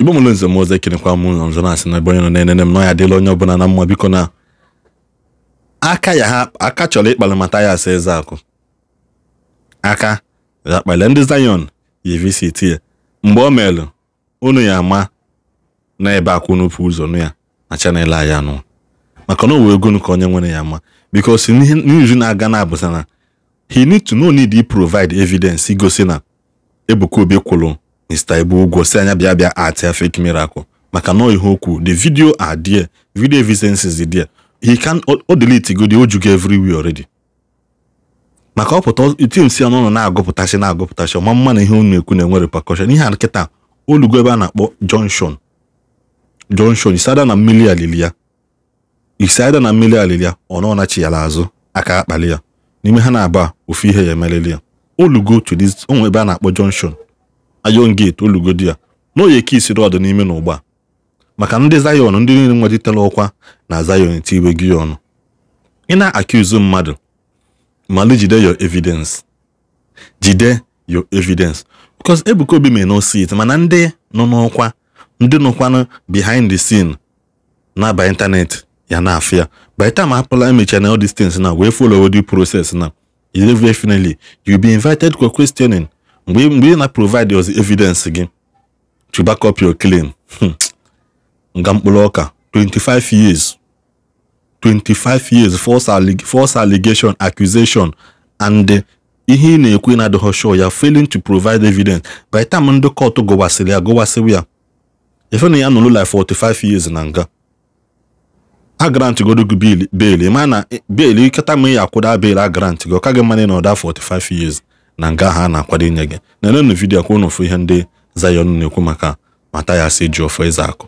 igbo mụlụ nze m ọzọ ekenekwa m ụlọ nzọ na-asị na ebe onye nọ na-enene m na ya adịla onye ọbụla na mma biko na aka ya ha aka chọrọ ịkpalị mata ya asa eze akụ aka ya kpalị ndị zayọn yi visit ya mgbe o meelụ unu ya ama na ebe akwụ n'ụpụ ụzọ nụ ya na chanel anyị anụ maka na wee ego ka onye nwere ya ama biko si n'iri na-aga na abụsa na he need to know need provide evidence igosi na Ebuka Obi kwụrụ Mr. Ibu Ugwo si anya bịa bịa ati fake miracle maka na ihe okwu the video are there video evidence is there he can o delete go the everywhere already maka ọpụta tim si ọnụ na-agụpụtasị na-agụpụtasị ọma mma na ihe unu ekwu na-enwere pakọshọn ihe a nkịta olugo ebe a na-akpọ junction junction isada na mmiri alili ya isada na mmiri ọ nọ aka akpali ya n'ime ha na-aba ofu ihe ya emelili ya olugo to this onwe ebe a na-akpọ junction ayon gate olugodi ya na oyi dị ọdụ n'ime na ụgba maka ndị Zion ndị niile nwetitela ọkwa na Zion eti gị ọnụ ị na-akụzu mmadụ mali jide your evidence jide your evidence because Ebuka Obi may not see mana ndị nọ n'ọkwa ndị nọkwanụ behind the scene na ịntanetị ya na afịa by time apụla emecha na na wee follow the process na finally you be invited for questioning mgbe ị na-provide ozi evidence gị to back up your claim hmm, nga mkpụrụ ọka 25 years 25 years false, alleg false allegation accusation and eh, ihe ị na-ekwu na-adịghị ya failing to provide evidence by time ndị kọtụ gụwasịrị ya gụwasịrị ya efe na ya nụrụ like 45 years na nga a grant godo gị beli ma na eh, beli kịta ma ya akwụda beli a grant gị ọ ka gị mmanụ na ọda 45 years na nke ahụ a na-akwado inye gị nenenụ vidiyo kwa ụnụfụ ihe ndị Zion na-ekwu maka Mathias Ejiofor Ezeaku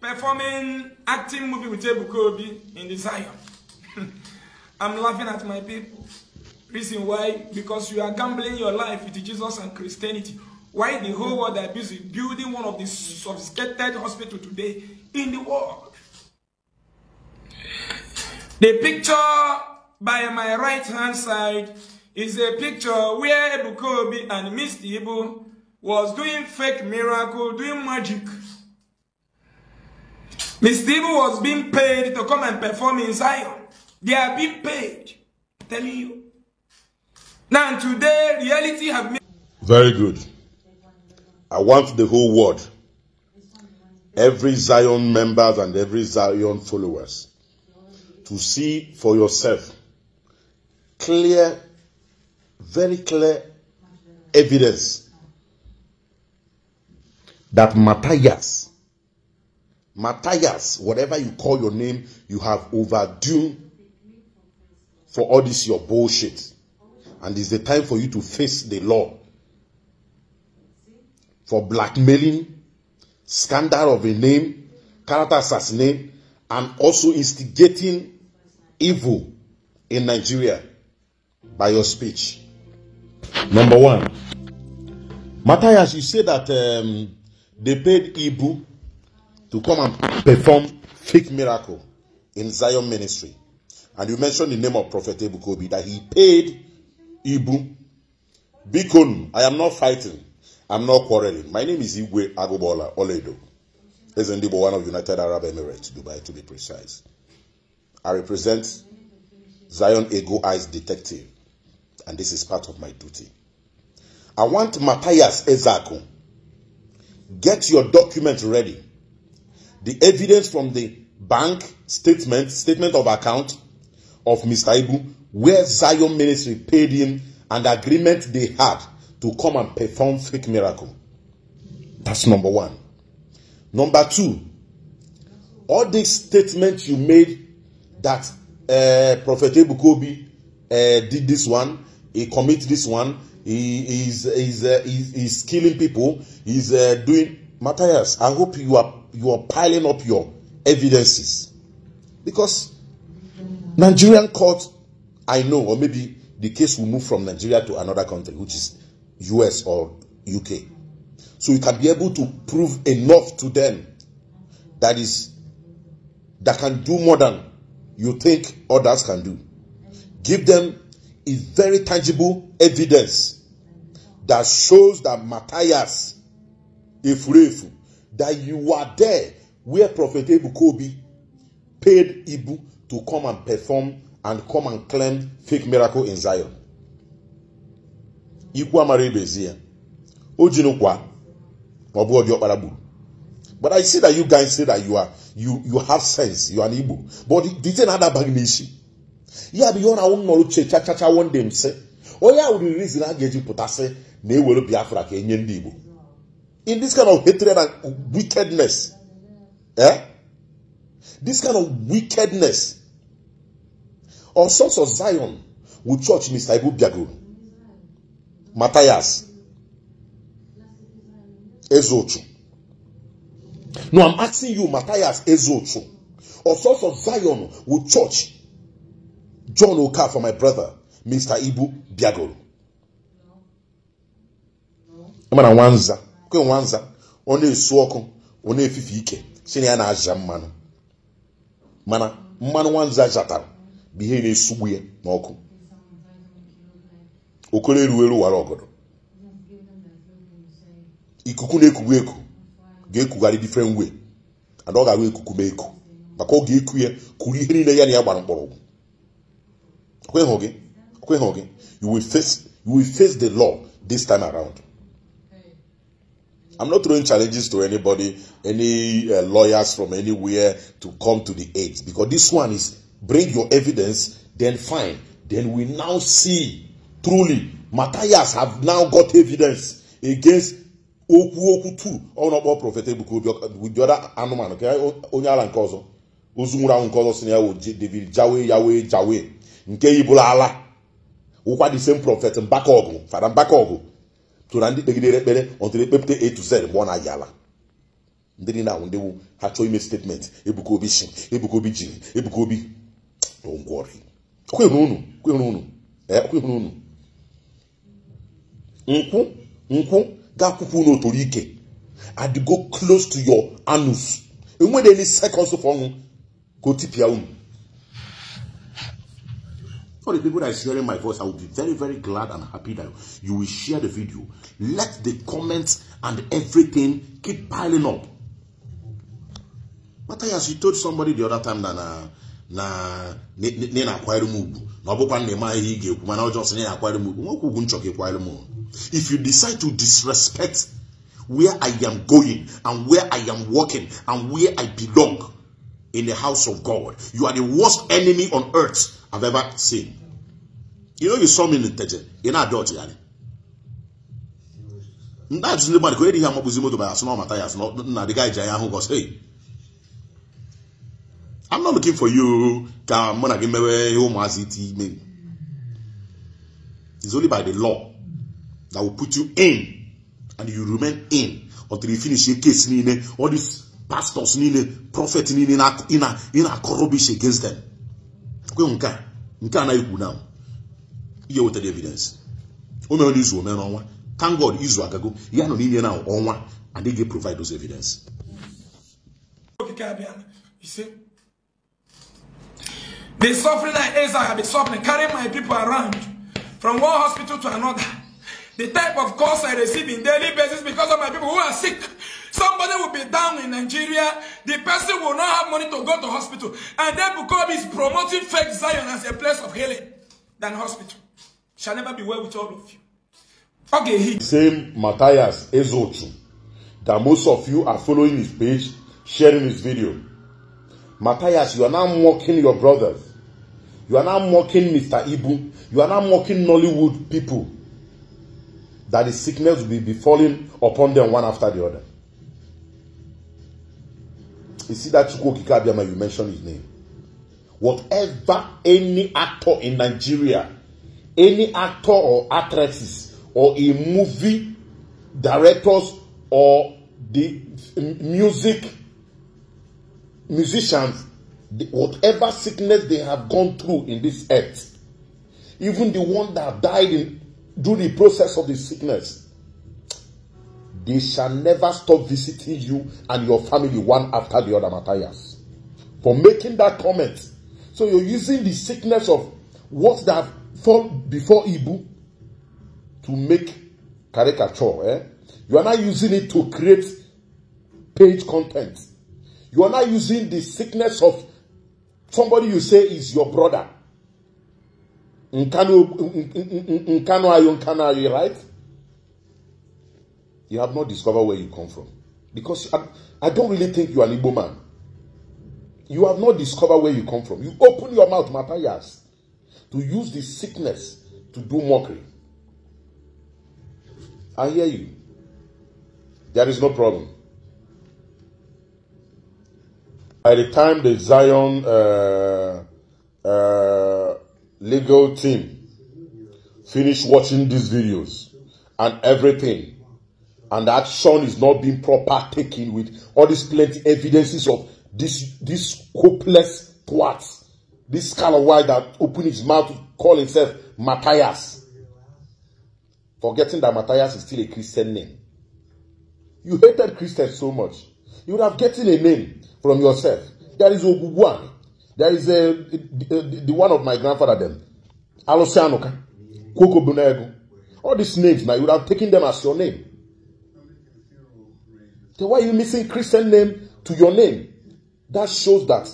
performing acting movie with Ebuka Obi in Zion I'm laughing at my people reason why because you are gambling your life with Jesus and Christianity why the whole world are busy building one of the sophisticated hospital today in the world the picture by my right hand side is a picture where Ebukobi and Miss Ibu was doing fake miracle, doing magic. Miss Ibu was being paid to come and perform in Zion. They are being paid. I'm telling you. Now today, reality have Very good. I want the whole world, every Zion members and every Zion followers, to see for yourself clear very clear evidence that Matthias, Matthias, whatever you call your name, you have overdue for all this your bullshit. And it's the time for you to face the law for blackmailing, scandal of a name, character assassination, and also instigating evil in Nigeria by your speech. Number one, Matthias, you say that um, they paid Ibu to come and perform fake miracle in Zion ministry. And you mentioned the name of Prophet Kobi, that he paid Ibu. Bikon, I am not fighting. I'm not quarreling. My name is Igwe Agobola Oledo. President one of United Arab Emirates, Dubai to be precise. I represent Zion Ego Eyes Detective and this is part of my duty. I want Matthias Ezako. Get your document ready. The evidence from the bank statement, statement of account of Mr. Ibu, where Zion Ministry paid him and agreement they had to come and perform fake miracle. That's number one. Number two, all these statements you made that uh, Prophet Ebukobi uh, did this one, he commits this one. He is is uh, killing people. He's uh, doing Matthias. I hope you are you are piling up your evidences because Nigerian court, I know, or maybe the case will move from Nigeria to another country, which is US or UK. So you can be able to prove enough to them that is that can do more than you think others can do. Give them is very tangible evidence that shows that Matthias Efurefu, that you are there where Prophet Ebu Kobi paid Ibu to come and perform and come and claim fake miracle in Zion. Ikwu amara ibezie. O jinukwa. Ma ọ bụ ọjọọ kpara gburu. But I see that you guys say that you are you you have sense, you are an Igbo. But the thing adabaghị n'isi. ya bụ ihe ọ na-awụ nnọrụ uche chachachawo ndị m onye ahụ riri rizin a ga-eji pụtasị na ewere biafra ka enye ndị igbo in this kind of hatred and wickedness eh this kind of wickedness or zion with church mr ibu biago matthias ezochu no i'm asking you matthias ezochu or zion with church John for my brother, Mr. Ibu Biagoro. na nwanza nwanza ọ na-esu ọkụ ọ na-efife ike si na ya na-aja mmanụ mana mmanụ nwanza zatara bụ ihe na-esugbu ya n'ọkụ okoro eruo eru wara ọgọdọ ikuku na-ekugbu eku ga-ekugharị different way ada ọ ga-agba ekuku ma eku maka ọ ga-eku kuru ihe niile ya na ya gbara Queen Hogan, you will face you will face the law this time around. I'm not throwing challenges to anybody, any uh, lawyers from anywhere to come to the aid because this one is bring your evidence, then fine. Then we now see truly Matthias have now got evidence against Oku Oku too. Honorable Prophet Ebuku with the other animal, okay? Onyala Nkozo. Ozumura Nkozo Sinia David Jawe jawe Jawe. nke yibụrụ ala wụkwa the same prophet Mbakaogu fada Mbakaogu so na ndị kpegidere ekpere ọtụrụ ekpepụta a to z mgbe ọ na-agị ala ndị dị na-awụ ndị ha chọọ ime statement Ebuka Obi si Ebuka Obi jiri Ebuka Obi unu nkwụ nkwụ ga-akwụkwụ unu eh, otoro ike and close to your anus enwere any seconds of ọnwụ ka o tipịa unu For the people that is hearing my voice, I will be very, very glad and happy that you will share the video. Let the comments and everything keep piling up. But as you told somebody the other time that uh, na na na ọ bụkwa na eme ihe ị ga-ekwu mana ọjọọ sị na akwanyere m ugwu nwoke ugwu nchọ ka if you decide to disrespect where I am going and where I am working and where I belong in the house of God. You are the worst enemy on earth I've ever seen. You know, you saw me in the church. You're not dodgy, yani. That's nobody could hear my buzimo to my asno matthias. No, the guy Jaya who goes, hey. I'm not looking for you. Come on, give me home It's only by the law that will put you in and you remain in until you finish your case. All this pastors niile prọfet niile ị na akọrọ rubbish against them kwe nke a nke na ikwu na ihe wetara evidence o mere izu ome n'ọnwa thank god izu agago ya nọ n'inye na ọnwa adịghị provide those evidence The suffering I Isaac have been suffering, carrying my people around from one hospital to another. The type of calls I receive in daily basis because of my people who are sick. Somebody will be down in Nigeria. The person will not have money to go to hospital. And then Bukobi is promoting fake Zion as a place of healing than hospital. Shall never be well with all of you. Okay, he. Same Matthias Ezochu that most of you are following his page, sharing his video. Matthias, you are now mocking your brothers. You are now mocking Mr. Ibu. You are now mocking Nollywood people. That the sickness will be befalling upon them one after the other. You see that Chukwu Kikabiyama, you mentioned his name. Whatever any actor in Nigeria, any actor or actresses, or a movie directors or the music musicians, the, whatever sickness they have gone through in this earth, even the one that died in, during the process of the sickness, They shall never stop visiting you and your family one after the other, Matthias. For making that comment. So you're using the sickness of what that fall before Ibu to make caricature. Eh? You are not using it to create page content. You are not using the sickness of somebody you say is your brother. Nkano ayo, nkano ayo, right? you have not discovered where you come from. Because I, I don't really think you are an Igbo man. You have not discovered where you come from. You open your mouth, Matthias, to use this sickness to do mockery. I hear you. There is no problem. By the time the Zion uh, uh, legal team finish watching these videos and everything, and that action is not being proper taken with all these plenty evidences of this this hopeless twat this kind of guy that opened his mouth to call himself matthias forgetting that matthias is still a christian name you hated christians so much you would have getting a name from yourself there is ogugwan there is a, a, a, the one of my grandfather them alosianoka kokobunego all these names now you would have taken them as your name Then why are you missing Christian name to your name? That shows that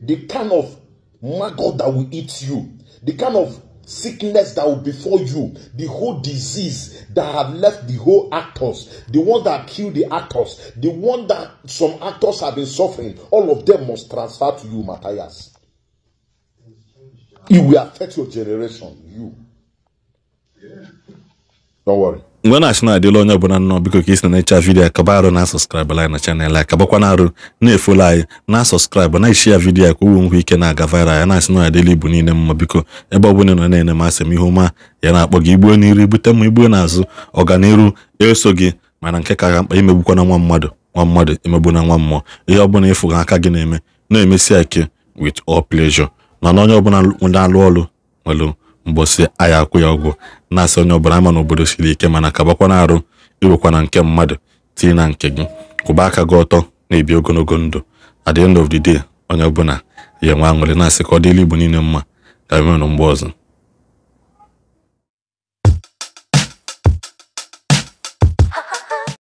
the kind of maggot that will eat you, the kind of sickness that will befall you, the whole disease that have left the whole actors, the one that kill the actors, the one that some actors have been suffering, all of them must transfer to you, Matthias. It will affect your generation, you. Yeah. Don't worry. mgbe na-achị na-adịla onye ọbụla nnọọ biko ka isi na ịcha vidiyo akaba arụ na sọskraịbụ anyị na chanel a kabakwana arụ na-efolo anyị na sọskraịbụ na ishi ya vidiyo a ka owe nkwe ike na-aga viral ya na-asị na adịla ibu niile mma biko ebe ọ bụla nọ na-ene masị m ihe ụma ya na-akpọ gị igbuo n'iru ibute ma igbuo n'azụ ọganiru eso gị mana nke ka ga mkpa na nwa mmadụ nwa mmadụ emegbu na nwa mmụọ ihe ọbụla ịfụ gị aka gị na-eme na-emesi ike with all pleasure na onye ọbụla na-alụ ọrụ nwere mbọsị agha akwụ ya ọgwụ na-asị onye ọbụla ama n'obodo siri ike mana kabakwa na arụ irụkwa nke mmadụ tinye na nke gị kwụba aka gị ọtọ na-ebi ogologo ndụ at the end of the day onye ọbụla ya enwe aṅụrị asị ka ọ dịla igbo niile mma ka emenụ mgbe ọzọ